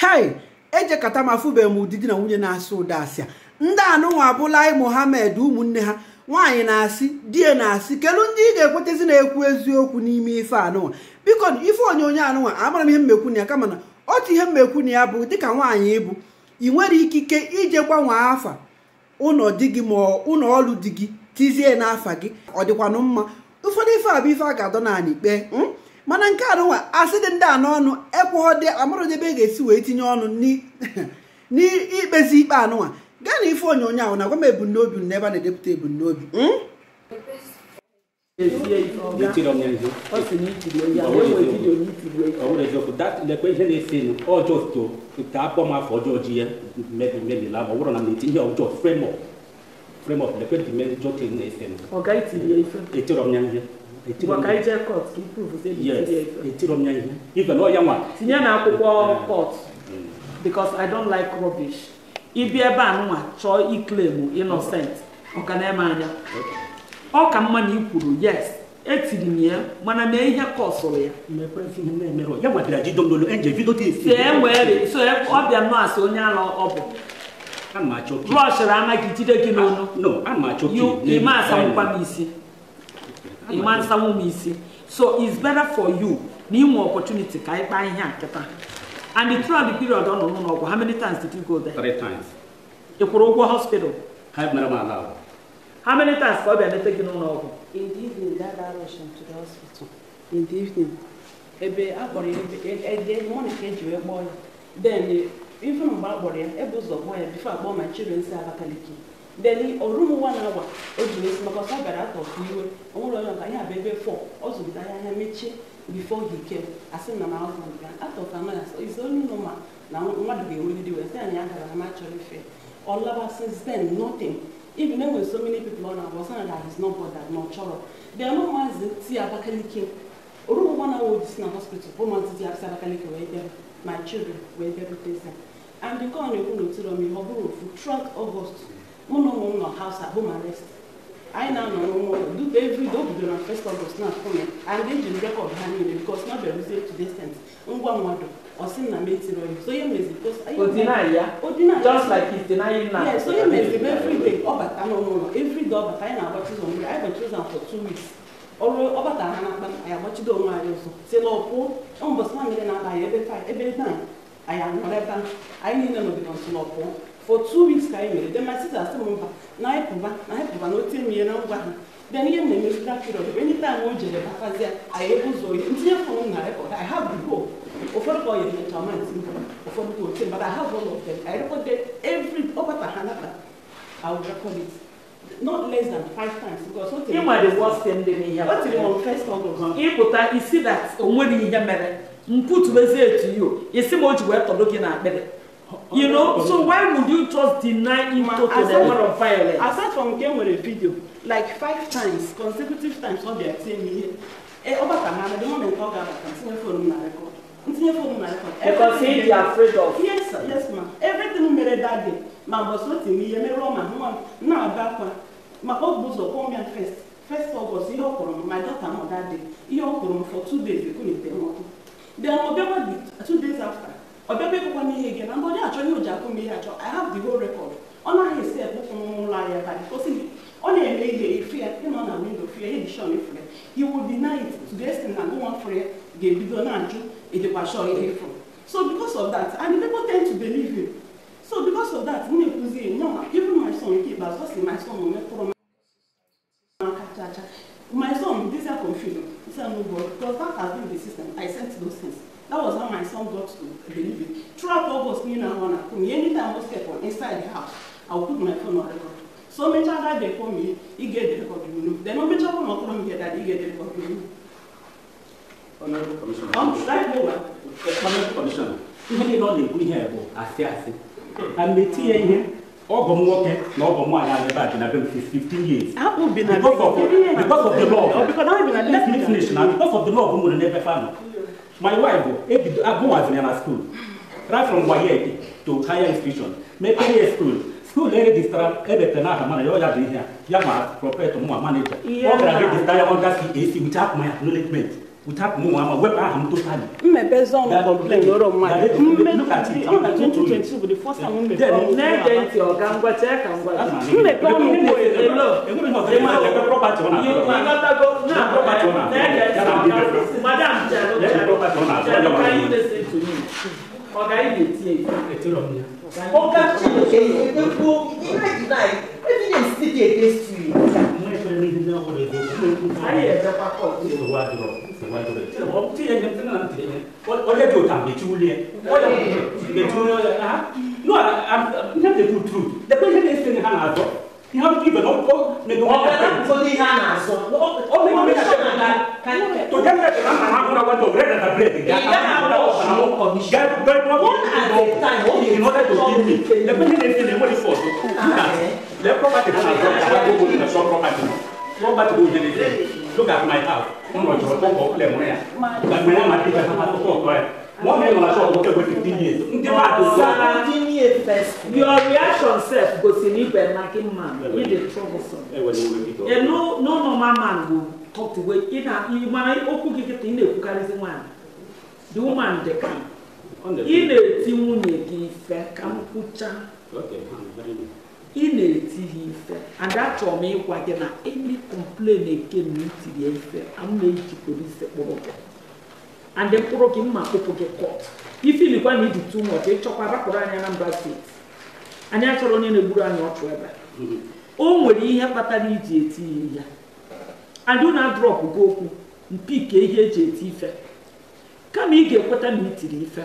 hai ejekata m afụbeghị m udidi na nwunye na asị ụda asịa ndị anụnwa abụlaị mohammed ụmụnne ha nwaanyị na-asị die na-asị kelu ndị ị ga-ekwetezi na-ekwu eziokwu n'ime ife anụnwa biko ife onyonyo anụnwa amara m ihe mmekwu na ya kama na otu ihe mmekwu na ya bụ dịka nwaanyị ịbụ ị nwere ikike ije gbanwee afa ụlọ di gị ma ụlọ ọrụ di gị tizie n'afa gị ọ dịkwanụ mma ụfọdụ ife a bụ ife a ga-adọ naanị ikpe hmm? mana nke arụwa asị dị ndị a n'ọnụ ebe ị e ga-esi wee tinye ọnụ n'ikpezi ikpe anụnwa gaa na ife onyonyo ahụ na gwa m ebumnobi n'ebe a na-edepụta ebumnobi lekwe ihe na-esi ọjọọ na ije kọt ka ipruvụzie etirom ihe ife na ọya nwa tinye na akwụkwọ kọt mm. because i don't like rubbish ibi ebe a nwa chọọ iklemu innocent ọka na-eme anya ọ ka mma na ikwuru yes etiri m ya mana mee ihe kọsụrụ ya e e so e, ọ bịa nọ asị onye ala ọ bụ brọshịrị anaghị jide gị n'ọnụ imasamkwa isi mmansa wo mu isi so it's better for you na ihu opportunity ka anyị kpaa ihe a and the throughout the period ọ nọ n'ụlọ ọgwụ how many times did you go there? three times. ị kwụrụ ụgwọ hospital? ha mere m ala ahụ. how many times ka ọ bịa nete gị n'ụlọ ọgwụ? in the evening dada rush to the hospital in the evening ebe a kpọrọ ya ebe e, e, e, mọnị ka eji wee kpọọ ya then even mgbe a kpọrọ ya ebe ụzọ kpọọ ya bifo akpọọ my children si Abakaliki deni orumụwa na hour o ji n'esi maka ọsọ gara iwe onwere onye ọka ya bụ ebe fọ ọ zụrụtara anya mechie bifo gị ke asị na na-azụ nke atọpụ anaghị asọ onye nọ ma na mmadụ ga wee anyị agara ama chọrọ ife ọlaba since then nothing even so many people ọ na-agba ọsọ na that is not na ọ chọrọ bịanụ maazị ti abakaliki orumụwa na awa ojisi na hospital bụ maazị abakaliki wee bịa ma children wee and ọ na-ekwu n'otiri ọmị ọ bụrụ ofu ụlọ ụmụ nọ house anyị na-anọrọ nwa ụlọ bidoro na first August na-akụme and ejiri rekọd ha niile bikos na bịaruzie to destent ngwa mmadụ ọsị na metiri oyi so m n'ụlọ ụlọ evriday ọ anyị na-agbachizo mgbe anyị ọrụ ọbata na-akpa anyị onwe anyị ụzọ si na na mmiri na anyị ebe ebe anyị anọrọ ebe anyị niile for two weeks ka e then my sister still remember na anyị pụba na anyị pụba na o tie na ngwa ha then ihe m na-emezi that period bụ enyi taa o jere batazie anyị ebe ụzọ oyi ntinye fon na rekọd i have the hope ụfọdụ ka ọ yere nyecha ọma nti mba ụfọdụ ka otie but i have all of them i recorded every ọgbata oh, ha nata i will record it not less than five times because o tere ịnwa the worst ndị m ihe o tere on first august ịpụta isi that o nweghị ihe mere mpụtụbezie etu ya o isi ma o ji wee tọdụ gị na akpịrị you know oh, so why would you just deny him to to the word of violence. aside from game with a video like five times consecutive times ọ bịa tie me. ihe ee ọ na mana the moment ọ ga-abata ntinye fon m na rekọd ntinye fon na rekọd. because he dey afraid of. yes yes ma everything mere that day ma mbọsi o tiri me. ihe merụọ ma nwa m na-aba akwa maka ọ bụ ụzọ kwọọ first first august ihe ọ my daughter mother day ihe ọ for two days ekwunite m ọkụ then ọ bịakwa two days ifre he will deny it to the extent that no one prayer ga-ebido na-ajụ edekwacho ihe ifre so because of that and the people tend to believe him so because of that m na-ekwuzi no even my son nke ikpeazụ ọ sị my son metụrụ n'aka chacha my son this is confusion he said no God because that has been the system I sent those things that was how my son got to believe it throughout August me na one akumi anytime I was kept on inside the house I would put my phone on record So me that they call me, he get the record you Then many matter how much come here that, he get the record you Commissioner. Even if not here, I say, And the here, all no 15 years. I of, because of the law. Oh, because a let Because of the law, we will never My wife, I go as in school, right from Wayeti to higher institution, maybe school. ule registara ebete n'aha mana ya ọya dị ihe a ya ma prọpet mụnwa maneja ọ gara registara ya ọga si esi wich apụ ya acknowledgement wich apụ mụnwa ma wepụ aha m totali mmepe zọn kọmplen ọrọ mmadụ mmepe ọnụ bụ elo Madam, can you listen to me? organize the team. Oga Chineke dey dey go he dey like deny evidence still dey against you. Ayé ẹ̀jẹ̀ pápọ̀ ní ìwà dùrọ̀ ìwà dùrọ̀ tí wọ́n ti yẹn yẹn fúnra ti yẹn ọ̀rẹ́ bí o tà mẹ̀tí wúlé ẹ̀ ọ̀rẹ́ mẹ̀tí wúlé ẹ̀ ha no n yà tẹ̀kù tru dẹ̀kọ̀ yẹn lè fi ní hàn àzọ ní hàn tún ibẹ̀ lọ́kọ̀ mẹ̀tí wọ́n bẹ̀rẹ̀ láti fọ́ ní hàn àzọ. ọ̀rẹ́ mi ò ní sọ̀rọ̀ nǹkan tó jẹ́ mẹ́tẹ̀ẹ̀rẹ̀ máa ń hàn fúnra wọn tó rẹ̀ dàda bẹ̀rẹ̀ commission. Get, get one, one at a time. What in order to give me, the person dey dey money for You ah, the property for my property go in the shop property. Property go dey dey. Look at my house. Wọ́n lọ jọ̀rọ̀ tọ́kọ̀ ọ̀kúlẹ̀ mọ́ yà. Gbàgbé náà máa dìgbà tó máa tó tọ̀ ọ̀tọ̀ ẹ̀. Wọ́n kẹ́kọ̀ọ́ fifteen years. Ndé máa tó sọ. Seventeen years first. Your reaction sef go see me by marking man. You dey troublesome. A eh, no no normal man go talk to way. Ina mana okwu gị kịta ị na-ekwukarịzi nwaanyị. The woman dey come. ị na-eti nwunye gị ife ka m kwụcha ị na-eti ha ife ada chọrọ m ịgwa gị na eni kọmplen nke na itiri ife m na-eji polisi kpụrụ gị andị mkpụrụ gị mma kpụpụ gị kọt ifilikwa na iji tu nwọchị ịchọkwa rapụrụ na mba steeti anyị achọrọ onye na-egburu anyị ọchụ ebe o nwere ihe kpatara iji eti ya adị na drọpụ gị okwu mpike ihe eji eti ife kama ị ga-ekweta na itiri ife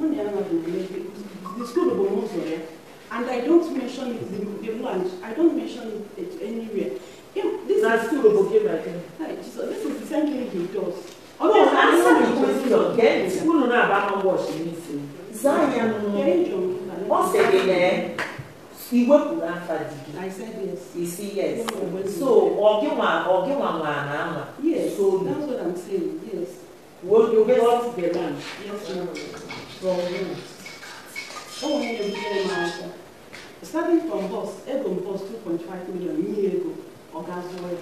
the school of Omosoya, and I don't mention it, the, the lunch, I don't mention it anywhere. If this That's is school of Omosoya. So this is the same oh, thing eh? he does. Although yes, I know the question again, school no about what she needs to. Zion, what's it in iwepụrụ afa di gị isi yes so ọ gị nwa the land. Yes, from who? Who made him Starting from boss, Egon boss 2.5 million year ago, or oil.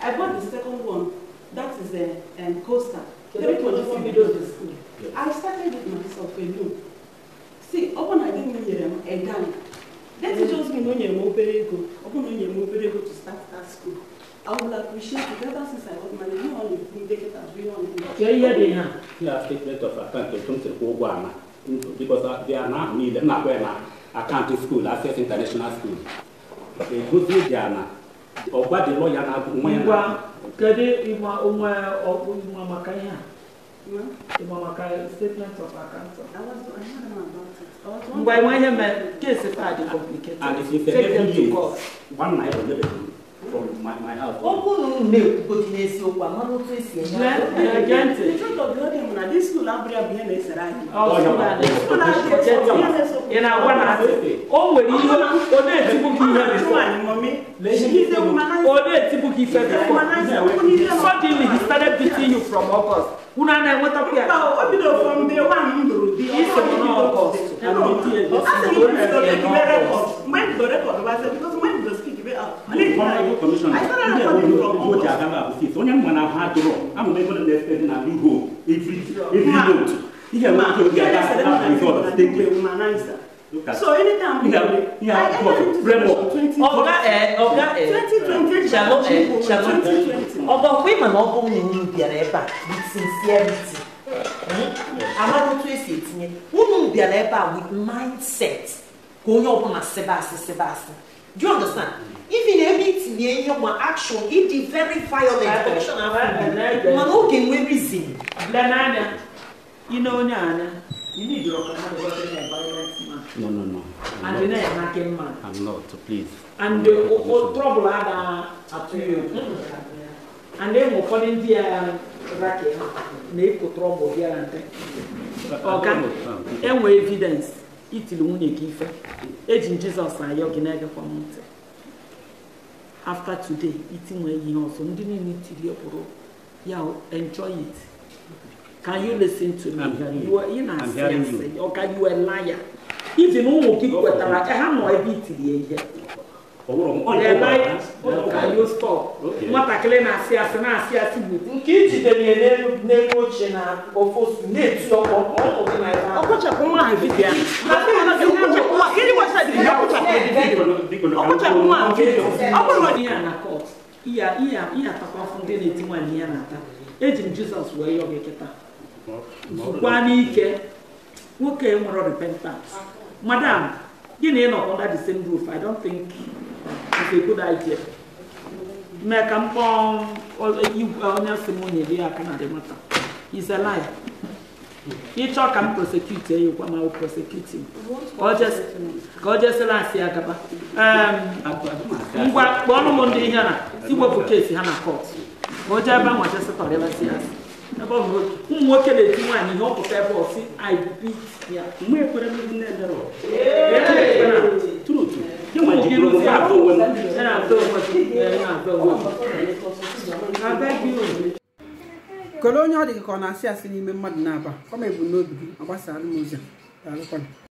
I bought the second one, that is a eh, um, coaster, 3.4 million to school. I started with myself alone. See, upon I didn't hear eh, him, a gang. me mm. just know more very good, upon no year more to start that school. I would appreciate it ever since I got married. e ihe dị ha a statement of account etu m siri kwụ ụgwọ uh, na na Access International School egosi dị ana. ọgba dị lọya na nwa ya kedu ịma onwe ọkpụ ịma maka ihe a ịma maka statement of account ngwa ịma ihe mee kesi complicated from my, my house. Okwu na unu na-ekwugodu n'eziokwu ama n'otu esi enye aka. The truth of the whole thing na this school abụrị abụ ihe na-esere anyị. Ị na-agwa na o nwere ihe ọ na-etigbu gị ihe bifọ. Ọ na-etigbu gị ife bifọ. Suddenly he started beating you from August. Unu a na-enwetakwu ya. O bidoro from day one m lụrụ di. Isi m n'August. Mgbe m dọrọ rekọd, mgbe m dọrọ rekọd, ale fana y'o commission na i yɛrɛ y'o yɔrɔ ko ja kan ka se sɔnyɛ mɔna ha dɔrɔn an kun bɛ fana lɛ fɛn na bi go every every note i yɛrɛ ma to ja kan ka ka sɔrɔ ten tɛ. so anytime we go i get to eh, eh. twenty twenty ọ̀gá ẹ ọ̀gá ẹ twenty twenty ṣàlọ ẹ ṣàlọ ọ̀gá ọ̀gbẹ́ ìmọ̀ náà ọ̀gbọ́n yìí ń bìàrà ẹ̀ bá with sincerity amadu tó èsì ètìyẹ wọ́n mú bìàrà ẹ̀ with mindset kò ń yọ ọ̀gbọ́n àṣẹ bá Do you understand? Even everything in your action, it is very violent. Action Man, okay, we reason. Blanana, you know, Nana, you need your violence man. No, no, no. I'm and you're not a man. I'm not, please. And the uh, uh, trouble ada at you. And then we're calling the racket. Make trouble here and there. Okay. Um, and we evidence. itili nwunye gị ife eji m jizọs ayọ gị na-egekwa m ntị afta today itinwe ihe ọzọ ndị niile itili bụrụ ya enjoy it can you listen to me ị na-asị ọ ka you a liar even ụmụ gị kwetara eh, ha nọ ebe itili ihe eh, eh. ọwụrọ na-asị asị na-asị asị bụ nke ijidere ya n'elu oche na ofosu na-eti ọkpọ ọkpọchapụ nwa ha vidiyo ọkpọchapụ nwa ha vidiyo ọ bụrụ na ihe a na kọt ihe ihe atakwafụ ndị na-eti nwaanyị ya na-ata eji m jizọs wee yọ gị kịta zukwa n'ike nwoke nwere repentance madam gịnị nọ under the same roof i don't think nke mee ka mkpọ onye si m na ya aka na remota is a ya ịchọ ka m prosecute ya ma ọ prosecute ka o jesịla asị ya gaba ngwa kpọọnụ m ndị ihe na iwepụ ha na kọt ka o jee ebe ya ụmụ nwoke na-eti nwaanyị ihe ọ ebe ọ si ibi ya mgbe ekwere Níwọ̀n Kele onye ọ dị ka ọ na-asị asị n'ime mmadụ na-aba, ọ ma n'obi gị, ọ gbasara m ụzọ, daalụkwanụ.